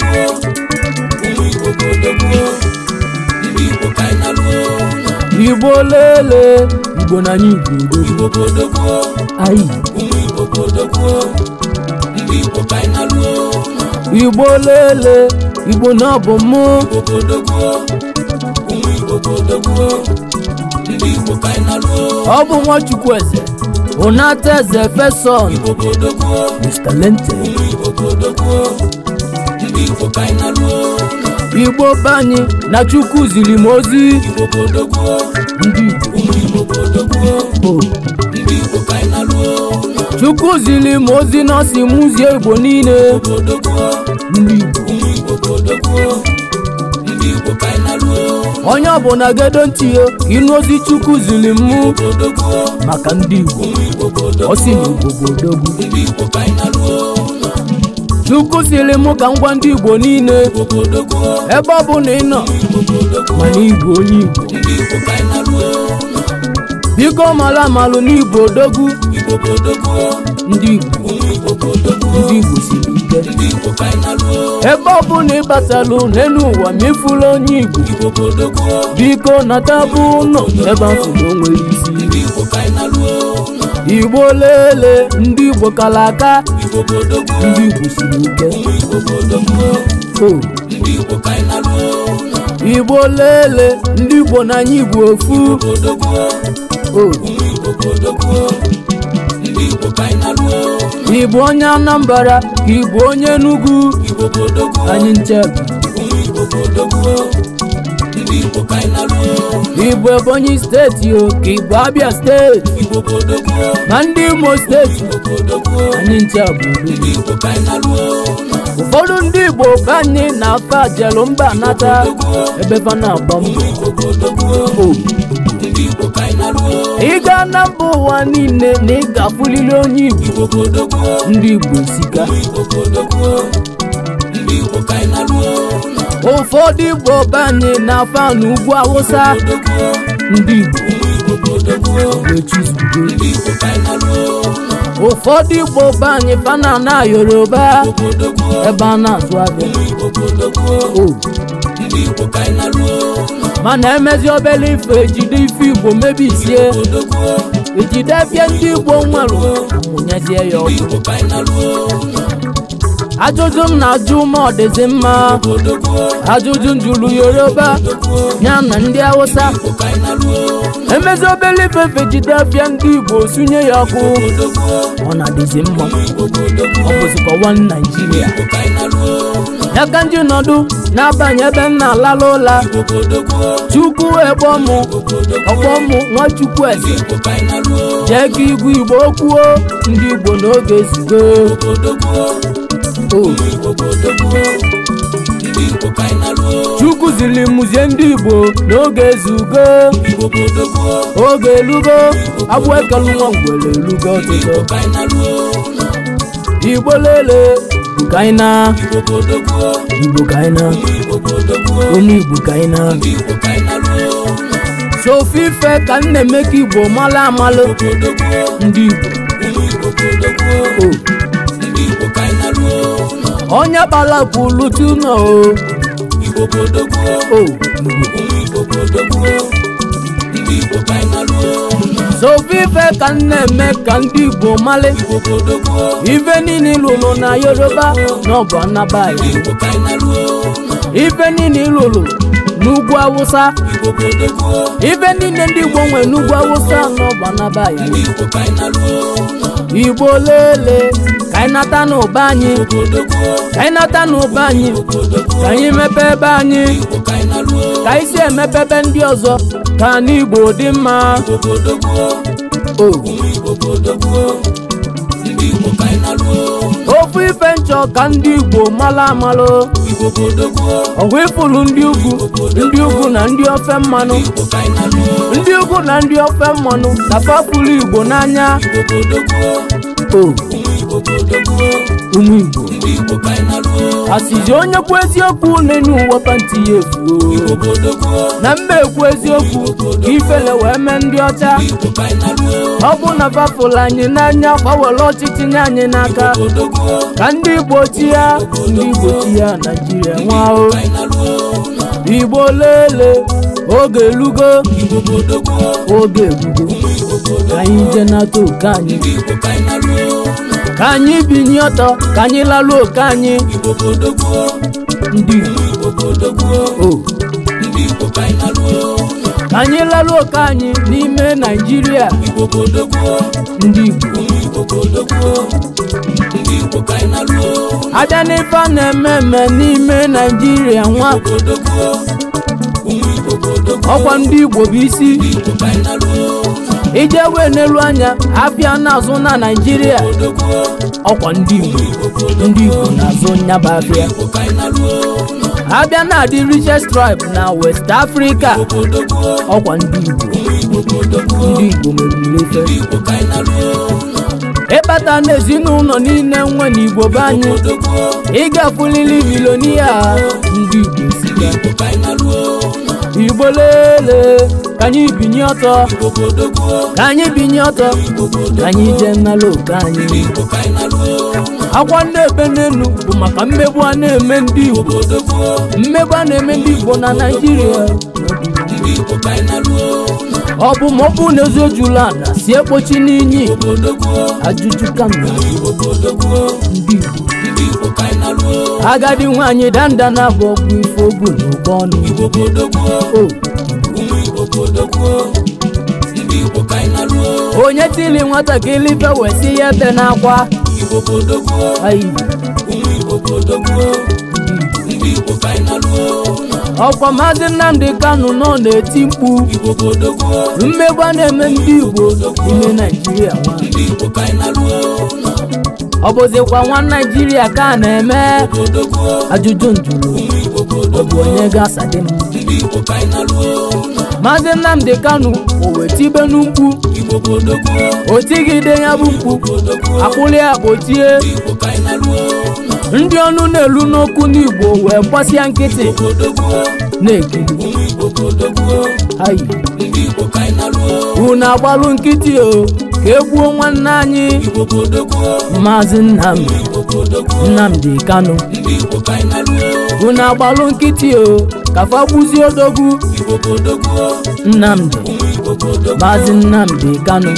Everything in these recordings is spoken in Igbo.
gboo ụmụ igbo obodo igbo ka anyị na igbo lele igbo na ụmụ igbo ka anyị na igbo lele igbo na ọbụ mụ ụmụ igbo obodo ndị igbo na eze Mr. Lente igbo be anyị na chukwu ziri m ozi chukwu ziri m ozi na si m ụzie igbo niile onye ọbụla gedo ntị ya ka ịnụ ozi chukwu ziri m maka ndị igbo ọ sị na igbo bụ odogwu chukwu siri mụ ka ngwa ndị igbo niile ebe ọ bụ na ị nọ mana igbo onye igbo biko mara amalụ n'igbo odogwu ndị igbo siri ike ebe ọ bụ na ị batalụ n'elu ụwa ma onye igbo biko nata bụ ụlọ ebe afụ na isi igbo lele ndị igbo kalaka ndị igbo siri ike igbo lele ndị igbo n'anya igbo ofu igbo onye anambra ka igbo onye enugu anyị nchebe igbo ebonyi steeti o ka abia steeti na ndị imo steeti anyị ncha bụ ụfọdụ ndị igbo banye anyị na-afa ajelu mba nata ebe Fana na ị gaa na mba ụwa niile na ị ga-afụlili onye Igbo ndị Igbo sika ụfọdụ igbo banye n'afa n'ugwu awụsa ndị igbo ụfọdụ igbo be fana na yoruba ebe a na-azụ abịa mana emezi obele ife ejide ife igbo mebisie ejide bịa ndị igbo nwere ụnyezie ya ọkụ ajụjụ m na-ajụ ma ọ dịzi mma ajụjụ njụrụ yoruba ya na ndị hausa emezi obele ifefe jide afịa ndị igbo sunye ya ọkụ ọ na-adịzi mma ọ naijiria ya ka ndị nọdụ na-abanye ebe m na-alala ụla chukwu egbọmụ nwa nwachukwu eze jee ka igwe igbo kwuo ndị igbo n'oge ezigo igbo chukwu ziri mụzie ndị igbo n'oge ezugo oge elugo agwọ ekelu nwa ngwere elugo ọtụtụ igbo lele kaina igbo kaina onye igbo kaina sofi ife ka m na-emeka igbo mala amalụ ndị igbo onye gbara kwulu tuna o Igbo kodogbuo ụmụ ka m na-eme ka ndị Igbo male, ife niile lụrụ na Yoruba na ọ bụ Anambra ife niile lụrụ n'ugwu Awụsa ife niile ndị Igbo nwere n'ugwu Awụsa na ọ bụ Igbo lele anyị nata n'ụba anyị ka anyị n'ụba anyị ka anyị mepe ebe anyị ka anyị si emepe ebe ndị ọzọ ka n'igbo dị mma ofu ife nchọ ka ndị Igbo mala amalụ ọgwụ ịfụlụ ndị ugwu ndị ugwu na ndị ofe mmanụ ndị ugwu na ndị ofe mmanụ na fapụlụ Igbo n'anya o ụmụ Igbo asịzi onye kwuo eziokwu n'enu ụwa panti ya efuo na mba ekwu eziokwu ka ifele wee mee ndị ọcha ọ bụ na bafụlụ anyị n'anya gbawere ọchịchị nye anyị n'aka ka ndị Igbo ya ndị Igbo chi ya Naijiria nwao Igbo lele oge elugo oge ka anyị je nata oke anyị ka anyị binye ọtọ ka anyị lalụ oke anyị ndị ka anyị lalụ oke anyị n'ime naijiria ndị igbo abịa n'ife a na-eme eme n'ime naijiria nwa ọkwa ndị igbo bụ isi ijewe n'elu anya abịa n'azụ na naijiria ọkwa ndị igbo ndị igbo n'azụ nyaba abịa abịa na adị richest tribe na west africa ọkwa ndị igbo ndị igbo mere ife ịkpata e n'ezinụlọ niile nwe n'igbo be anyị ịgafulili milonia ndị igbo igbo lelee. ka anyị binye ọtọ ka anyị binye ọtọ ka anyị jee nnala oke anyị akwa na-ebe n'elu bụ maka mmegbu a na-eme ndị Igbo mmegbu a na-eme ndị Igbo na Naijiria ọ bụ ma ọ bụ na ezo ojula ala si ekpochi n'inyi ajụjụ kama agadi nwaanyị danda na-abụ ọgwụ ife na ọnụ onye tili nwatakịrị ife wee ya ebe n'akwa ọkwa maazị Nnamdi Kanu nọ na-eti mkpu mmegba na-eme ndị Igbo ime Naijiria ọ bụzikwa nwa Naijiria ka a na-eme ajụjụ njụrụ ọ bụ onye ga-asadị m maazị Nnamdi Kanu o wetibe otigide ya bụ mkpu akpụli ya kpochie ndị ọnụ na-elu n'okwu n'Igbo wee gbasịa nkịtị na-ekiri unu agbalụ nkịtị o ka egwuo nwanne anyị maazị Nnamdi Kanu unu agbalụ nkịtị o kafa gbuzie odogwu Nnamdi maazị Nnamdi kano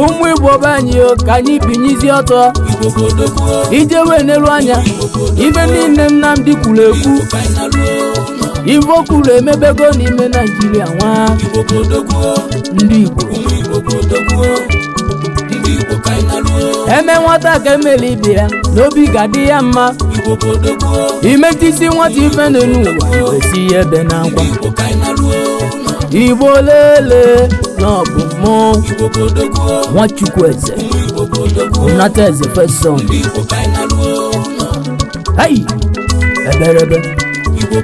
ụmụ igbo be anyị o ka anyị binyezi ọtọ ijewe n'elu anya ibe niile Nnamdi kwuru ekwu ivo kwuru emebego n'ime naijiria nwa ndị igbo eme nwata ka emeli ibe ya n'obi ga-adị ya mma imetisi nwata ife n'elu ụwa esi ya ebe na akwa igbo lele n'ọbụ mụ nwachukwu eze nata eze fesọn eberebe igbo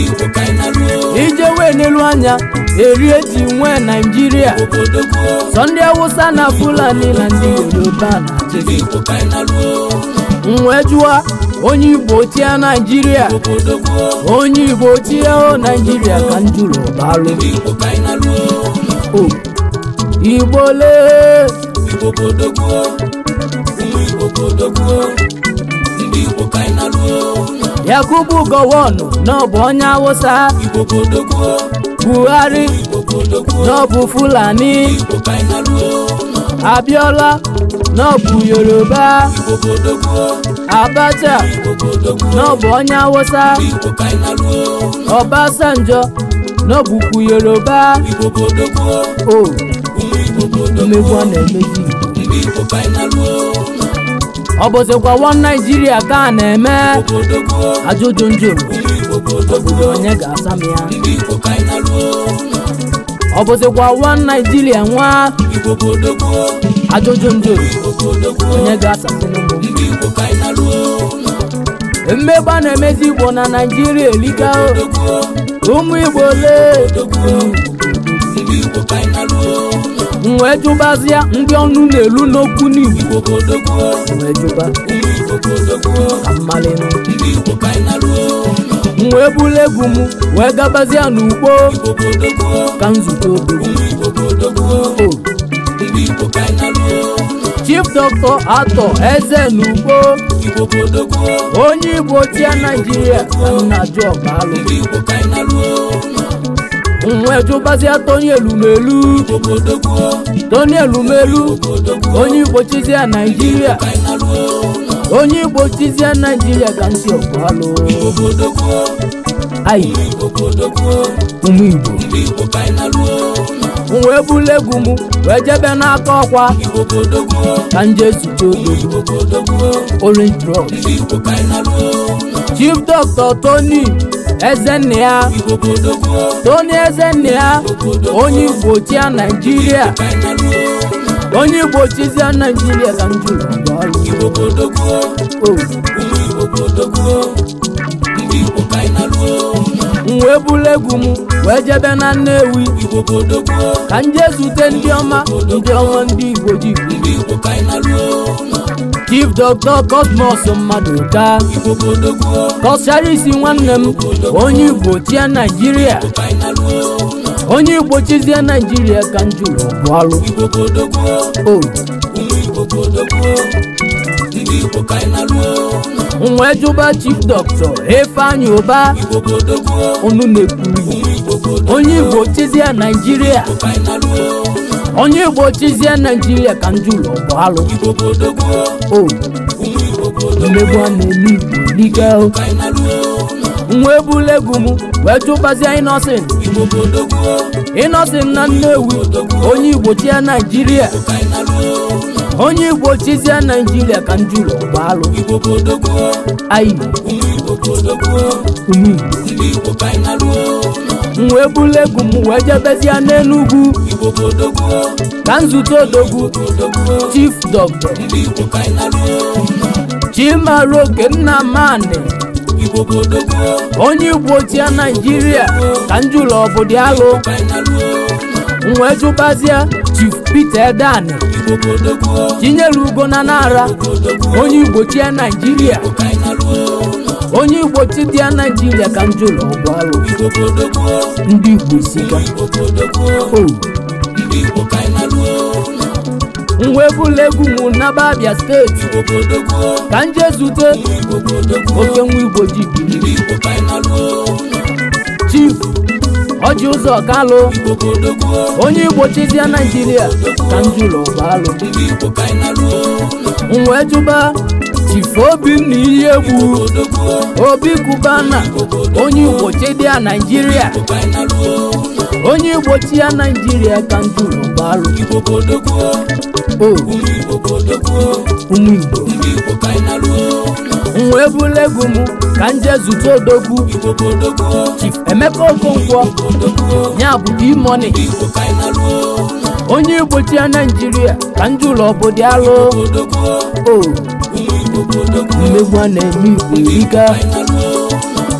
igbo ka ije wee n'elu anya erie ji nwee naijiria sọ ndị awụsa na fulani na ndị yoruba na nwee jụwa onye igbo tia naijiria onye igbo tia o naijiria ka njụrụ balụ igbole igbo igbo ndị igbo ka anyị naruo yakubu gowonu n'ọbụ onye awụsa buhari n'ọbụ fulani abiola n'ọbụ yoruba abacha n'ọbụ onye awụsa ọbasanjọ n'ọbụkwu yoruba o omegwu ọ na-emezi igbo ọ bụzikwa wọn naijiria ka a na-eme ajụjụ njụrụ obodo onye ga-asa m ya ọ bụzikwa wọn naijiria nwa ajụjụ njụrụ onye ga-asa tinubu mmegba na-emezi igbo na naijiria elika ụmụ igbo ole wee jụbazịa ndị ọnụ na-elu n'okwu n'igbo wee bulu egwu m wee gabazịa n'ugbo ka nzukọ chief dọkịta atọ eze n'ugbo onye igbo tia naijiria na jọbalụ nwe jụbazie Tony Elumelu Tony Elumelu onye Igbo chizie Naijiria onye Igbo chizie Naijiria ka ntị ayi ụmụ Igbo m wee egwu m wee jebe n'aka ọkwa ka nje zute odogo orange drug chief dọkịta tony ezenna tony ezenna onye igbo chia naijiria onye igbo chizia naijiria ka m wee buru egwu m wee jebe na Nnewi ka m jee zute ndị ọma ndị ọma ndị igbo ji chief dọkịta kosmos Maduka taa? nwanne m onye igbo chia naijiria onye igbo chizie naijiria ka m jụrụ bụalụ nwa oh. jụba chief dọkịta Ifeanyi Uba unu onye igbo chizie naijiria onye igbo chizie naijiria ka ndị bụ bụalụ omegbu a na-eme igbo n'ike nwa ebule egwu m wee chụbazie inosin inosin na nnewi onye igbo chia naijiria onye igbo chizie naijiria ka ndị bụ gbaalụ anyị ume m wee bulu m wee jebezie n'enugwu ka nzute odogwu chief doctor chimaru okennamani onye igbo tia naijiria ka njụlọ ọbụdị alụ m wee jụbazie chief peter edani chinyere ugo na nara onye igbo tia naijiria onye igbo chi dị ya naijiria ka njọ ụlọ ọgwụ alụ ndị igbo sikwa o. bụla egwu nwụ n'aba abịa steeti ka nje zute oke nwa igbo ji biri chief ọjị ụzọ kalụ onye igbo chizia naijiria ka njọ ụlọ ọgwụ alụ nwe jụba Chifobi na iyi egwu Obi Kubana onye Igbo chedia Naijiria onye Igbo chi ya Naijiria ka nduru barụ ụmụ Igbo m wee bụrụ m ka nje zụta odogwu Chief Emeka Okonkwo ya bụ dimoni onye igbochi ya Naijiria ka ndị ụlọ obodo alụ o mmegbu a na-eme igbo erika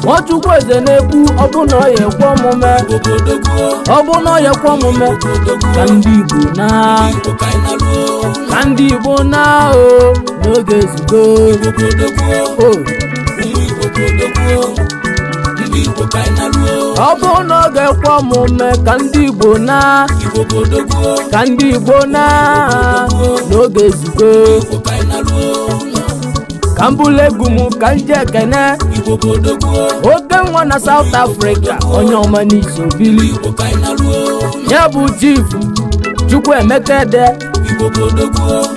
nwachukwu eze na-ekwu ọbụna ọya ekwe omume ọbụna ọya ekwe omume ka ndị igbo na ka ndị igbo naa o n'oge ezugbo o ọ bụ n'oge ekwe omume ka ndị igbo na ka ndị igbo naa n'oge ezugbo ka m bụlụ egwu m ka m ji ekene oge nwa na South Africa onye ọma n'izu bili ya bụ chief Chukwuemeka Ede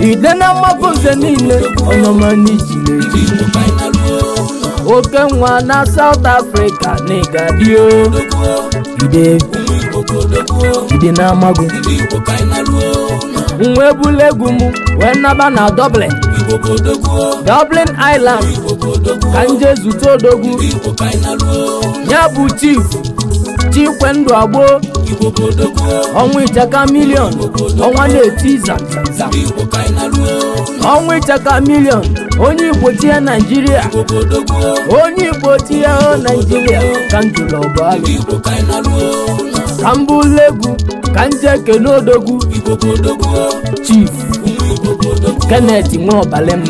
ide na mmapụ nze niile onye ọma n'iji na-eji oke nwa na South Africa na ịgadio ide ide na amago nwa ebula egwu m wee naba na doble Dublin Island ka nje zute odogwu ya bụ chief Chikwendụ Agbo ọnwa ichaka milion ọnwa na-eti iza ọnwa ichaka milion onye Igbo tie Naijiria onye Igbo tie Naijiria ka njụrụ ọbụalụ ka mbụ legwu ka nje kenu odogwu chief Kenneth Nwaobalem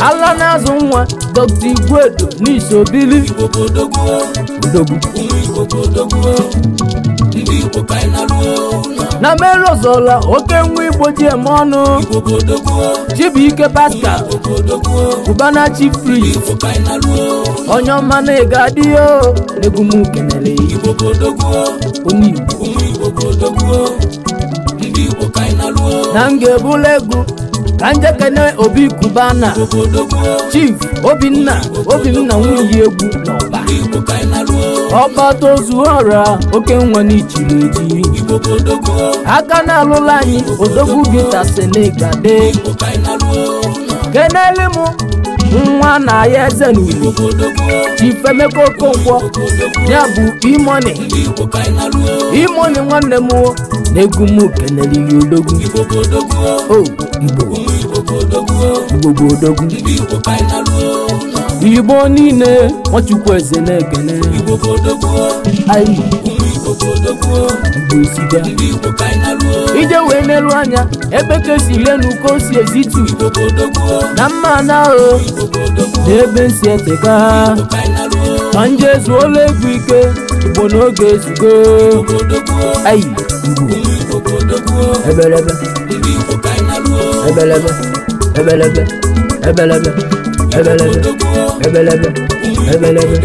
ala na-azụ nwa Dr. Igwedo n'isobili na mere ọzọla oke nwa igbo ji eme ọnụ Chibuike ike Cubana Chief Priest onye ọma na-ego adịghị egumukenere onye Igbo ndị Igbo ka anyị na-alụ na m ga-ebula egwu ka m jekene obi kubana chief obinna obinna nwunye egwu ọkpata ozuora oke nwa n'ichiri eji aka na-alụla anyị odogwu gita senegade kenele nwa na ya eze n'ugbo Ifemeka nkwọ ya bụ imoni imoni nwanne m na-egwu m keneliri odogwu igbo igbo niile nwachukwu eze na-ekene ogodogo ndị igbo ka anyị naruo ijewe n'elu anya ebe si lenu ka o si ezitu na mma na ahụ na ebe nsi eteka ha ma nje ezuola egwu ike igbo n'oge ezugo ayi ebelebe ebelebe ebelebe ebelebe ebelebe ebelebe ebelebe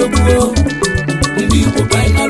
ndị igbo ka anyị naruo